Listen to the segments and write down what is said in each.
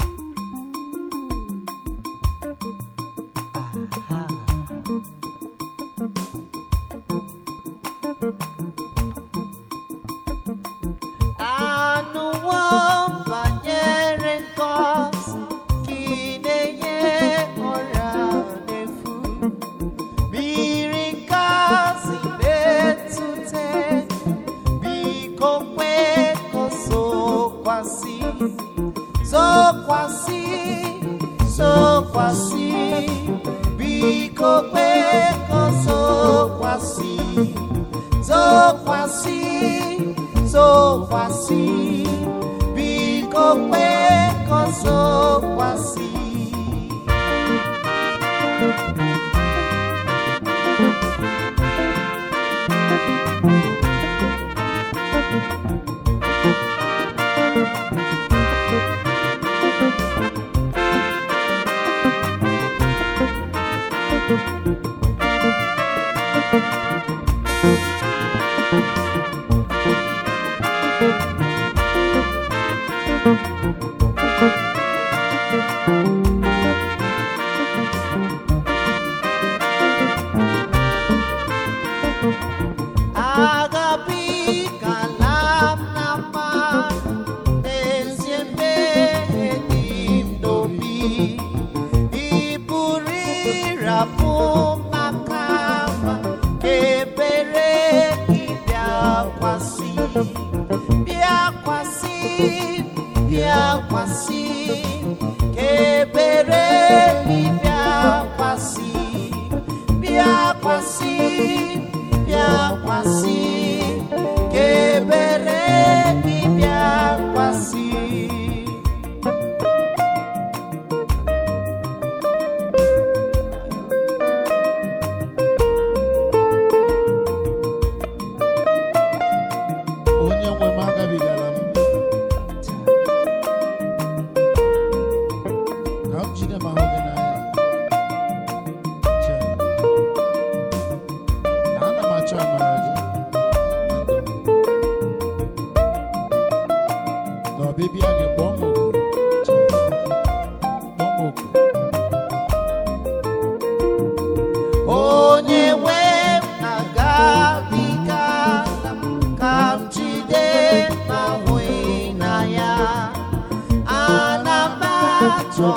a a atọ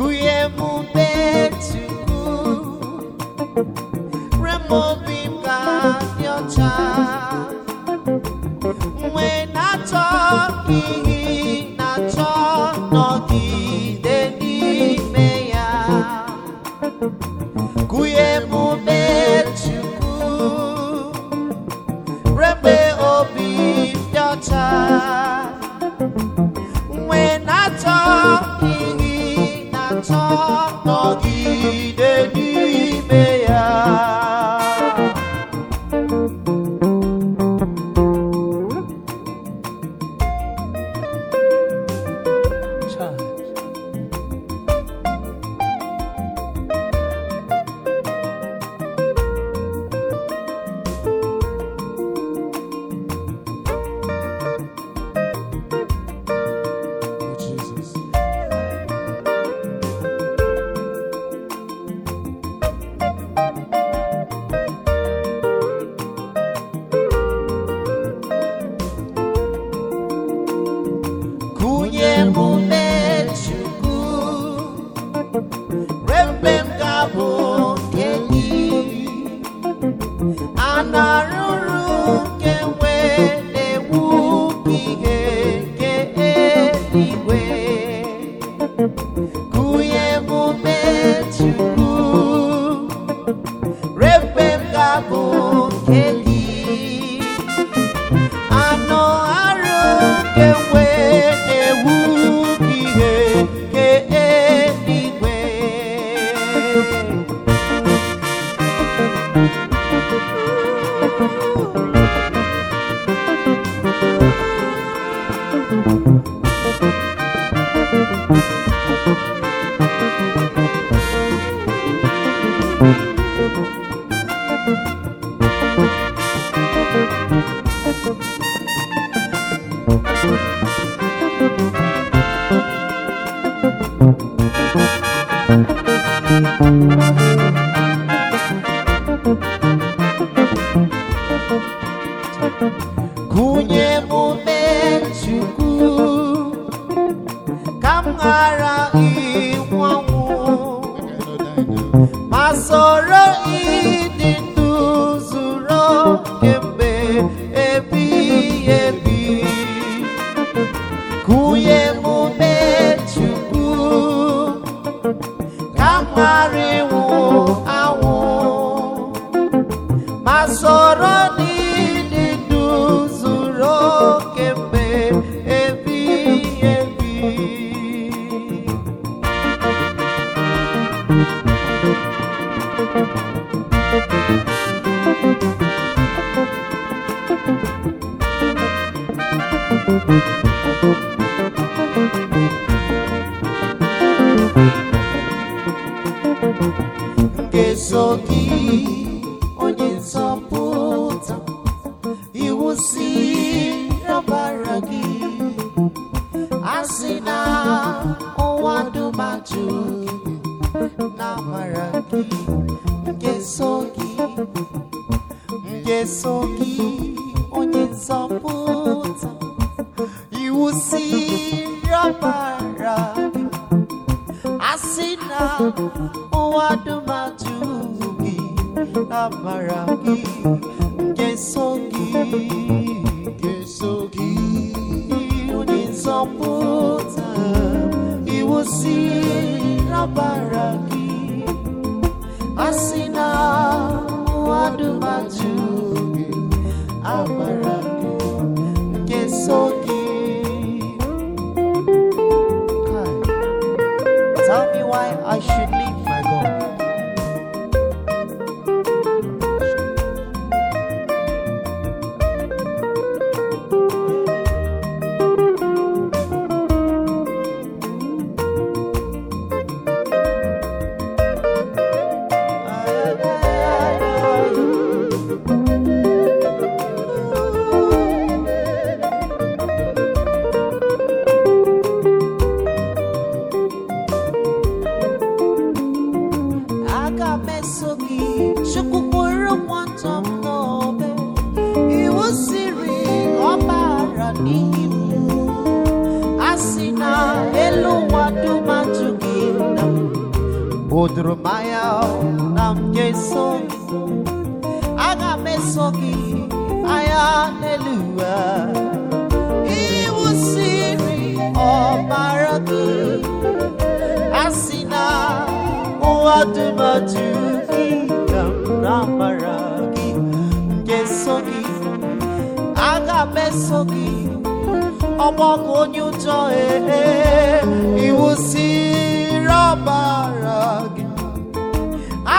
Kuyemu betuku Remog mara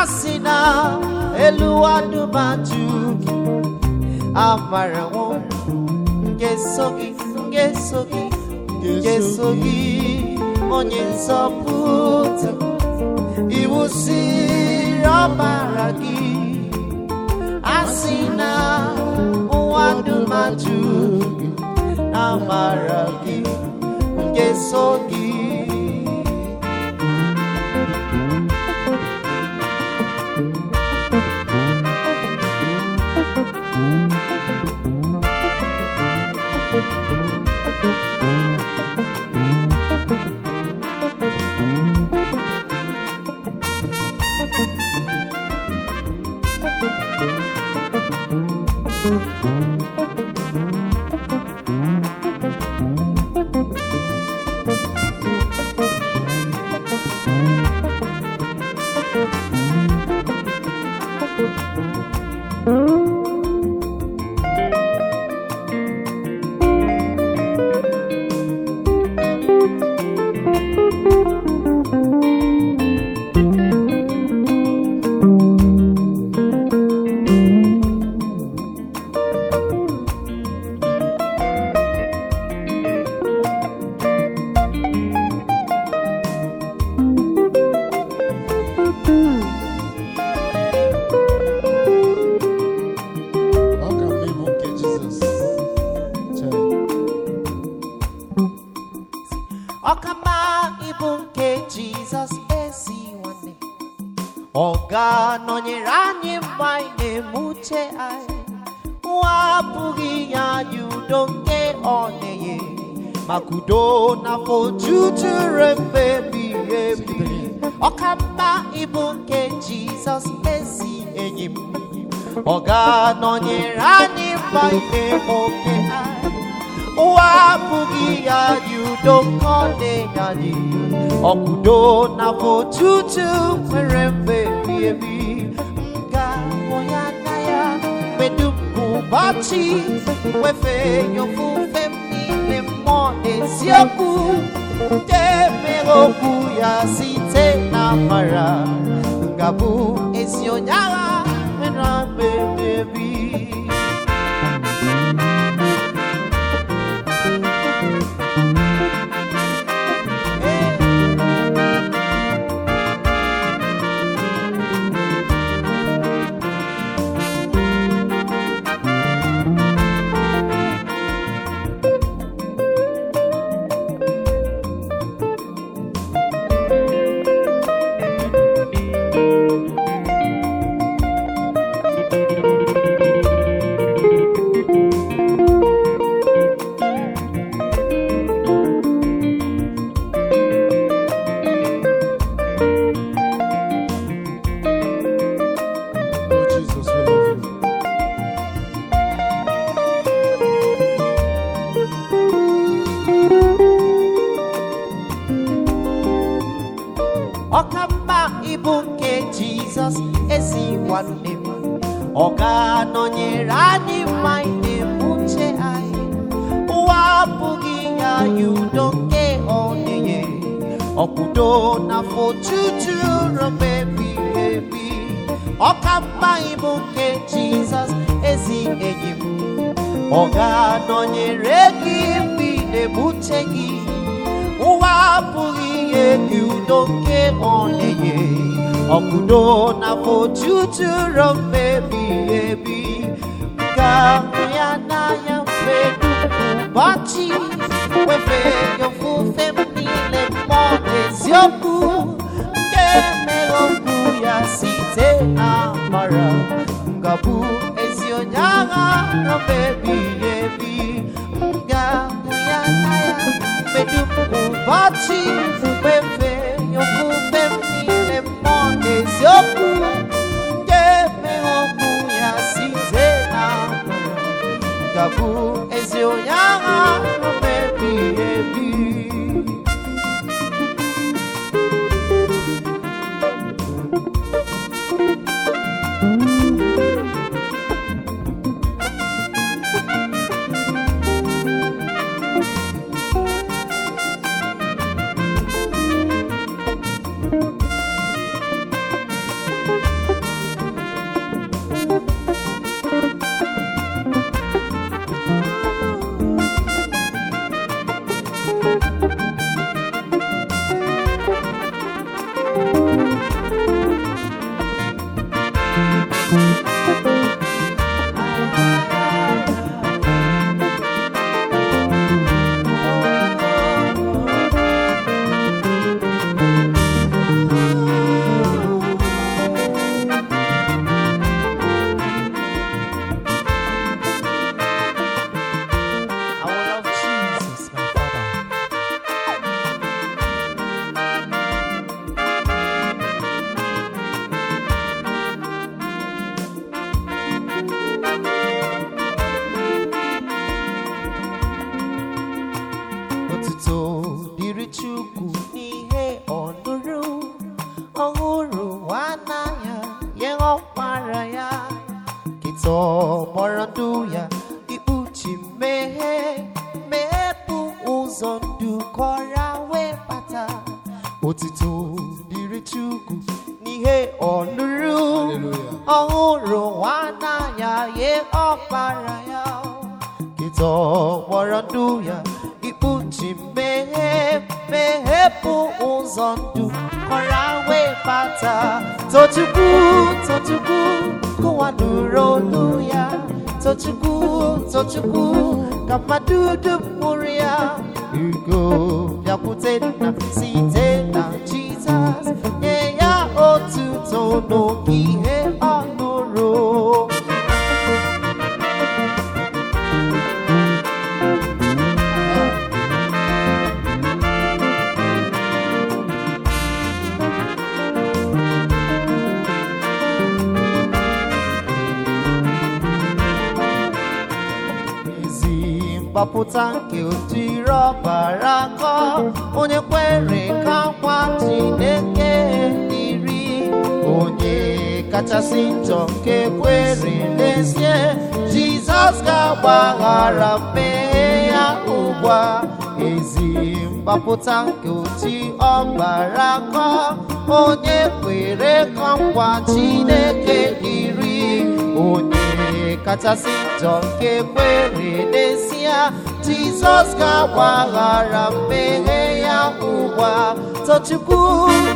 a sị na elu adụmatụ gị amara nwụrụ nke so gị nke so gị nke gị onye nzọpụta iwu siri ọbara gị a sị na nwa adụmajụ gị amara gị nke so gị udo na jujuru mgbe ebighị ebi ọka mma ịbụ nke jizọs ezi enyi m ọ ga-anọnyere anyị banye oke ụwa abụghị ya dị udo nke ọ na-enye dị ọkụdo na otutu nwere mgbe ebighị ebi nga ga-ahụ ya anya ya mgbe dum ụbọchị wefe nyofu isiokwu nke mere okwu ya site na amara ga-abụ ezi kọpụta nke otiro bara akọ onye kwere ka nkwa Chineke dịrị onye kachasị njọ nke kwere n'ezie Jizọs ga-agbaghara mmehie ya ugbu a ezi mgbapụta nke oti ọgbara akọ onye kwere ka nkwa Chineke dịrị onye kachasị njọ nke kwere n'ezie ya jizọs ga-agbaghara mmehie ya ụwa tochukwu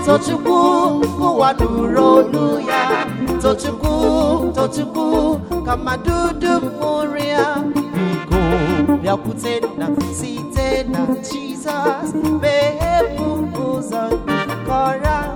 tochukwu ụwa nụrụ olu ya tochukwu tochukwu ka mmadụ dum mụrụ ya biko bịakwute na site na jizọs meghepụ ụzọ kọrọ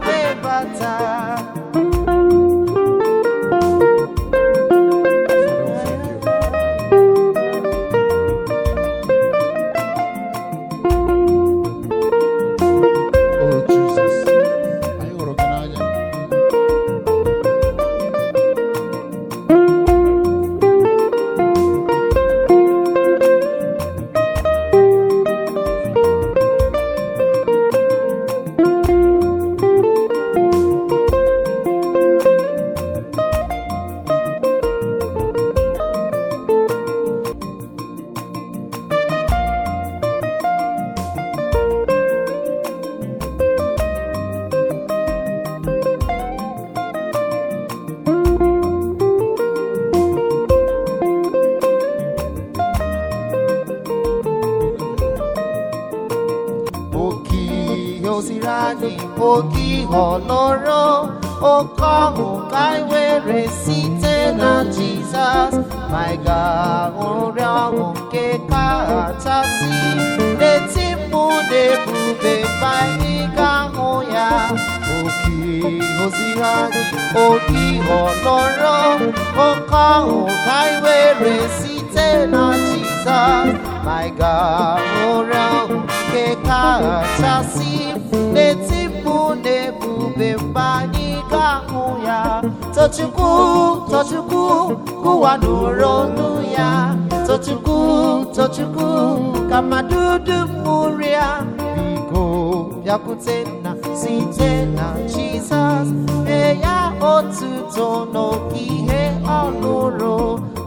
Jizọs nye ya otuto n'okihe ọ nụrụ,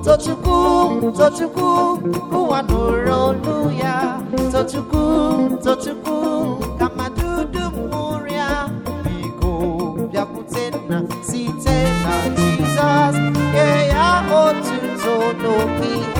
tochukwu tochukwu ụwa nụrụ olu ya tochukwu tochukwu ka mmadụ dum ṅụrịa biko bịakwute nna site na Jizọs nye ya otuto n'okihe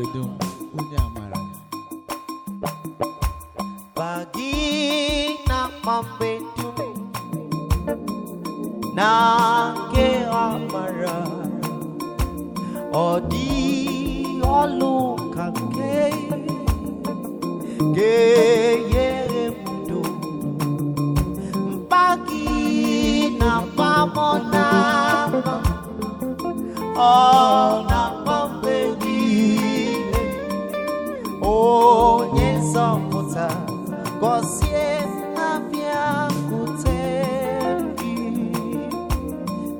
obodo m onye amara bagi na mgbe dum na nke amara ọ dị ọlụ ka nke ga-enyere m udo mkpagi na mgbamọ na ọ na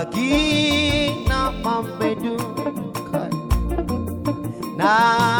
lagi nak membedukan Nah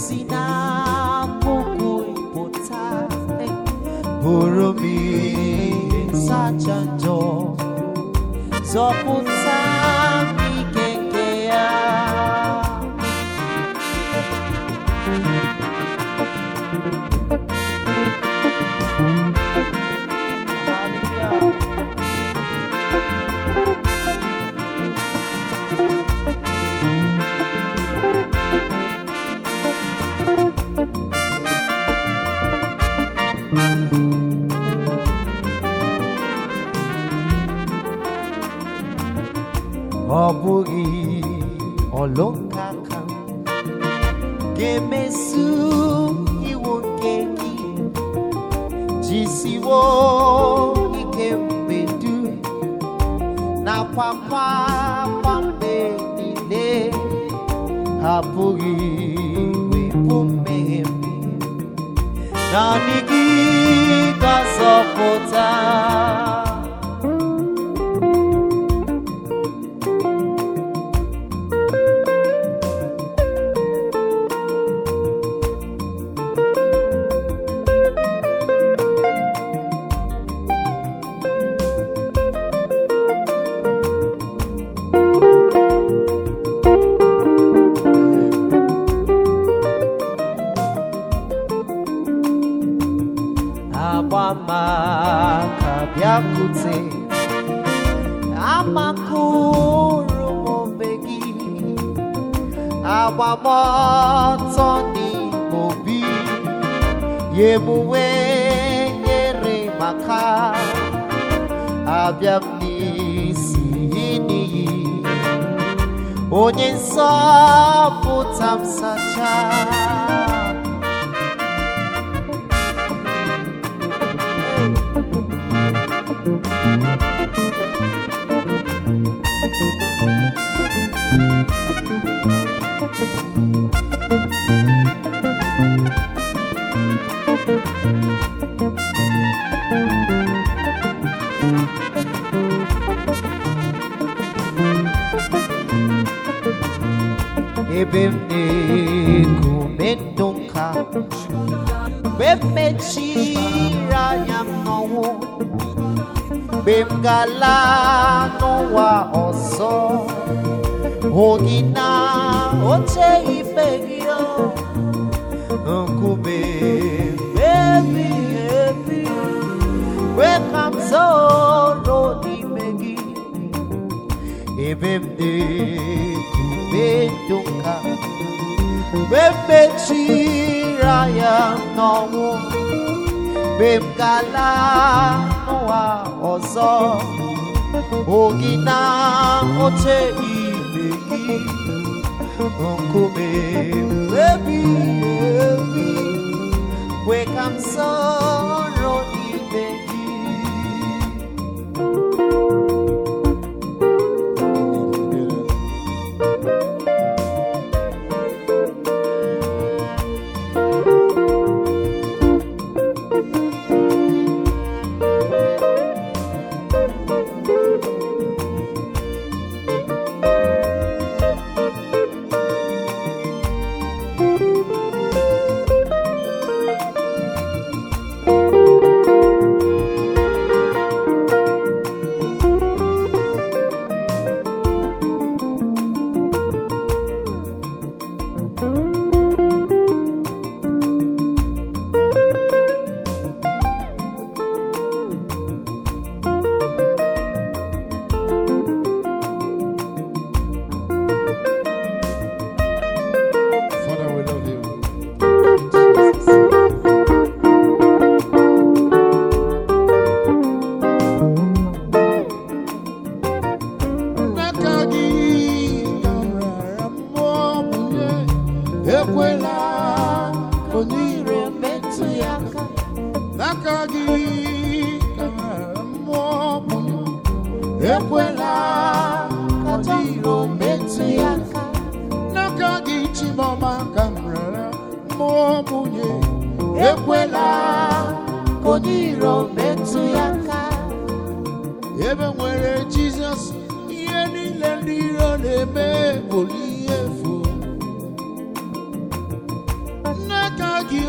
si na pụta bụrụ m ihe nsacha siwo ike mbedu nakwa mgbagba mgbe niile apụghị wepụ mmehie m naanị gị ga-azọpụta emuwe nyere maka abịa m n'isi n'iyi onye nsọ pụta m sacha bemeko medo nka mgbe m mechiri anya m n'ọnwụ mgbe m gala n'ụwa ọzọ hụ na oche ibe gị nkume ebi ebi mgbe ka m zoro n'ime gị ebe m dị kube mgbe mechira ya n'ọnwụ mgbe m ga-ala n'ụwa ọzọ ogi na oche ibe gị nkume ebi ebi kwe ka m sọọ aka gị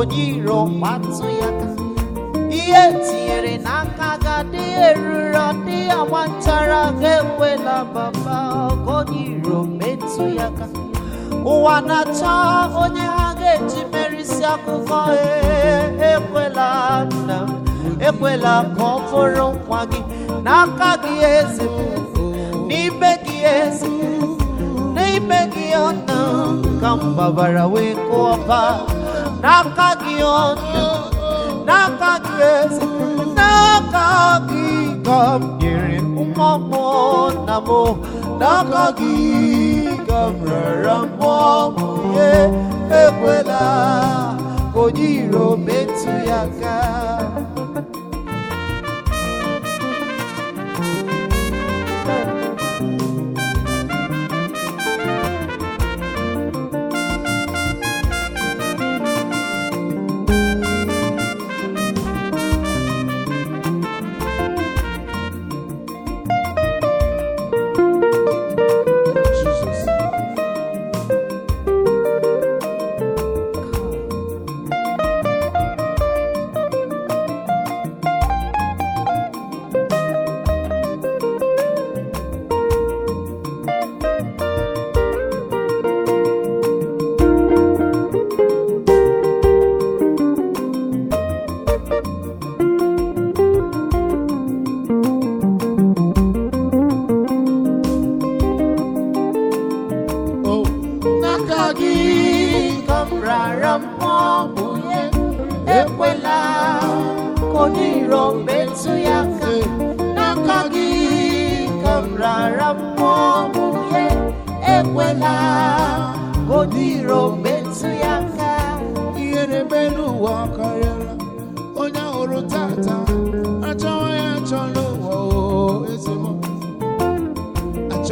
onye iro kwatụ ya ihe tinyere n'aka ga-adị eruru ọdị agba nchara ga-enwela baba onye iro metụ ya ka ụwa na-achọ onye ha ga-eji merisi akụkọ e, ekwela nna m ekwela ka ọ bụrụ nwa gị n'aka gị ezi n'ime gị ezi n'ime gị ọna ka m wee kụọ ọba asnaaka gịgaderị nwamụọ nnamn'aka gị yigaaramụọ egwelaagonyeiro metu ya gaa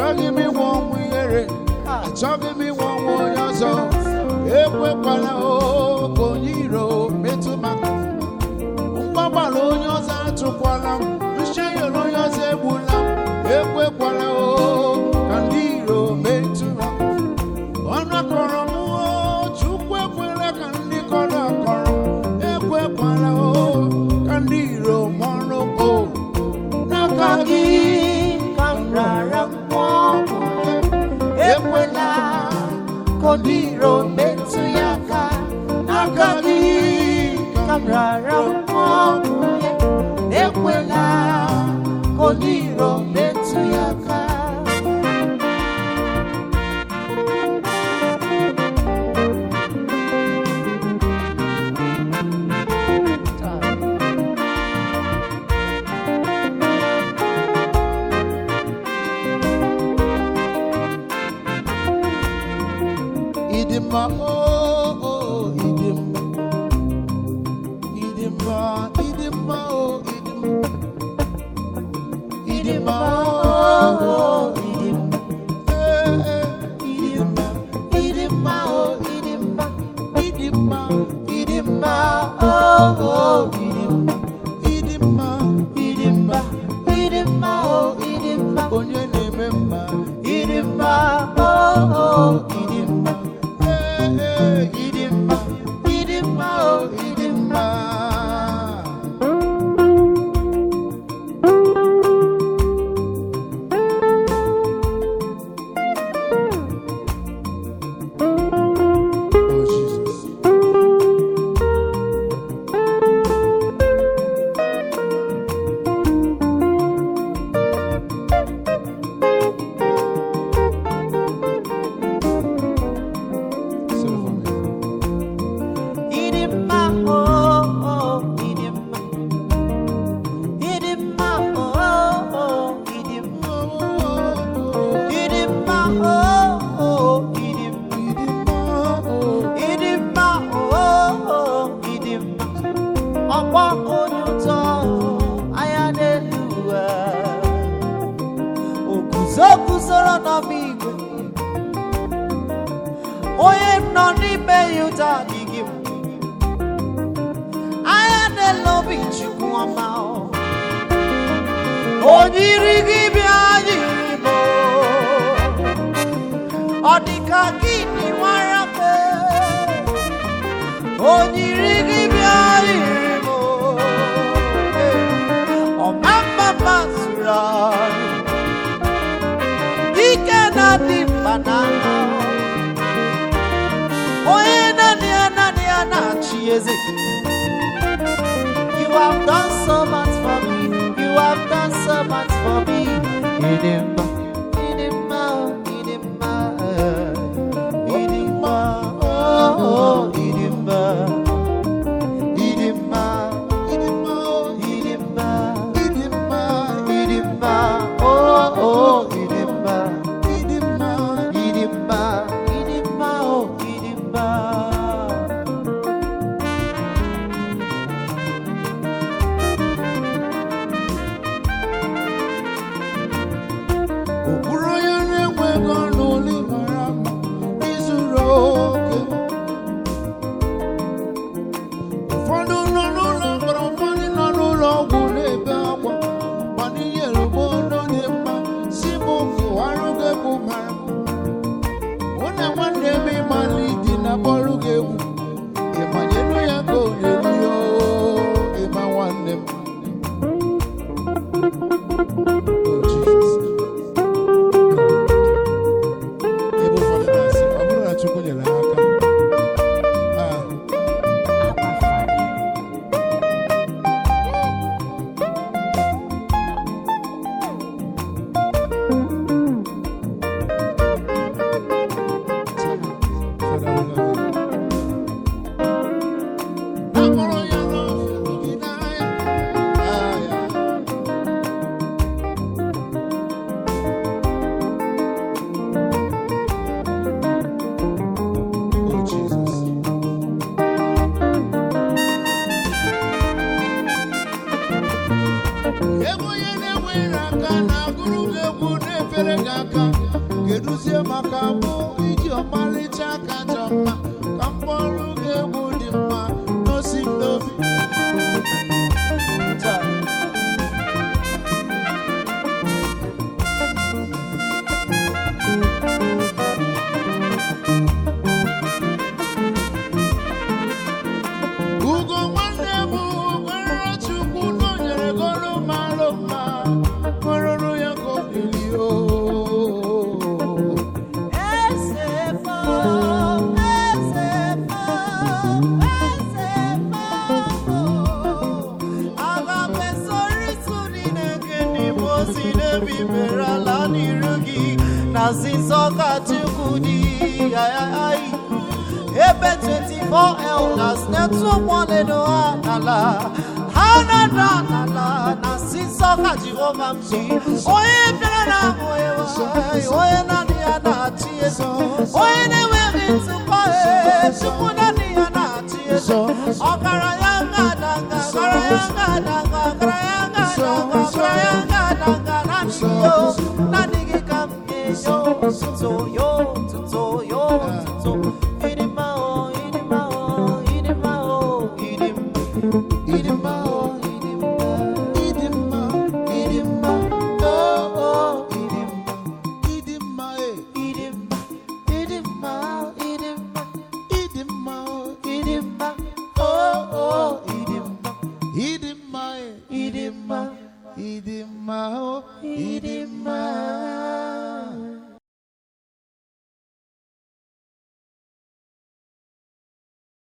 achọghị m ịnwe ọnwụ ihere achọghị m ịnwe ọnwụ onye ọzọ ekwekwala oke onye iro metụ maka mgbagbara onye ọzọ achụkwala. m onyiri gị bịa anyị Igbo ọ dị ka gịnị nwara mpe onyiri gị bịa anyị Igbo ọma mma masụrụ anyị ike na-adị mba na onye naanị ya naanị ya na-achị eze You have done so much for me. You have do ọrụ gị egwu four elders na-etu ụgbọledo ha a na-ada n'ala na onye bịara na naanị ya na-achị eso onye na-enweghị ntụkwa naanị ya na-achị eso ọkara ya ga-ada nga ọkara ya nga ya ya nga gị naanị